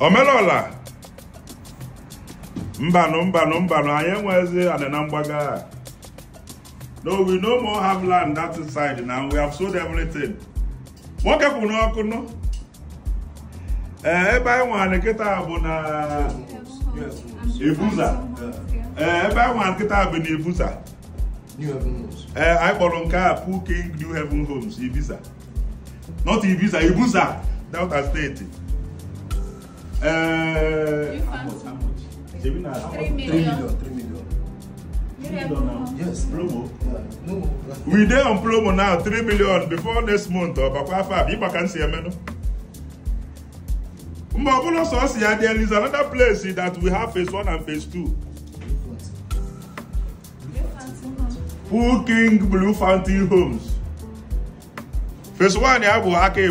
omelọla mbanụ mbanụ mbanụ anyị enwezi anịna mgbaga no we no more have land that side na we have sold everything nwoke kwuru n'ọkụ nụ eh, ebe anyị nwere nkịta bụ na ebuza eh, ebe anyị nwere nkịta bụ na ebuza ee eh, anyị kpọrọ nke a King New heaven Homes Ibiza not Ibiza Ebuza Delta steeti Eh, how much? How much? Three million. Three million. Three million now. Yes. Promo. Yeah. No. We there on promo now. Three million before next month or before five. You can see me no. Mbabulo Sosia, there is another place that we have phase one and phase two. Full King Blue Fountain Homes. Phase one, ya bụ aka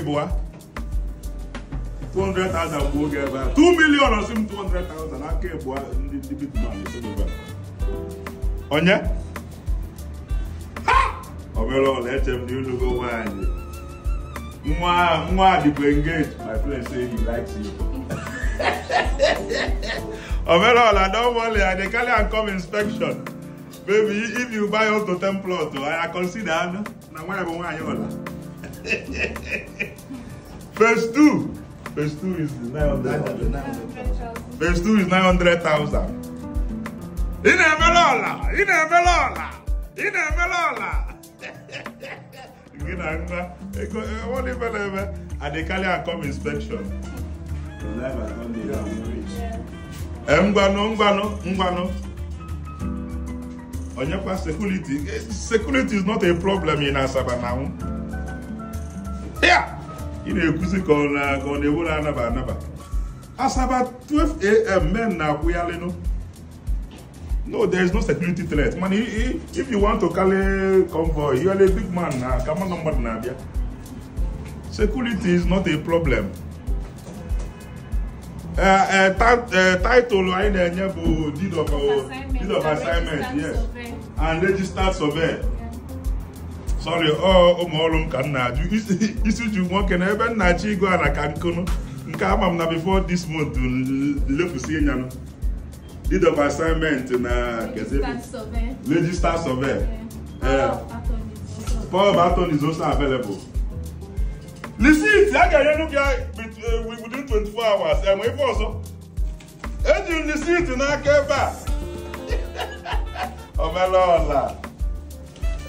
200,000 bụ oge ebe a 2 million ọsị m 200,000 n'aka ebu ndị bitman onye ọ mere ọla eche m n'ilugo nwaanyị nwa dịbụ engage my friend say he likes you omere ọla don worry i dey carry am come inspection baby if you buy up to 10 plot i consider anụ na nwaanyị bụ nwaanyị ọla phase 2 Verse 2 is 900,000. 900, Verse 2 is 900,000. Ị na melola, ọla! Ị na-emere ọla! Ị na-emere ọla! vai levar? nwa, ego ọwụla ife come eme and they carry and come inspection. Ee, eh, ngwanụ ngwanụ ngwanụ. Onyekwa security. Eh, security is not a problem in Asaba now. Yeah. ị na-ekwuzi ka ọ na-ewere anaba anaba asaba 12am men na-akwụghalịnụ no there is no security threat mana if you want to carry convoy you are a big man na ka mmadụ mmadụ na-abịa security is not a problem eh, eh, eh, title anyị na-enye bụ deed of assignment yes and registered surveyor sọrị ọ ụmụ ọrụ m ka m na-ajụ isi nwoke na ebe nna chi igo ala ka nkụnụ nke ama m na before this month ịnya ịnyanụ deed of assignment na register survey power of attorney is also available receipt a ga-enyenu gị within 24 hours enwe ife ọzọ eji m receipt n'aka ebe a ọbele ọla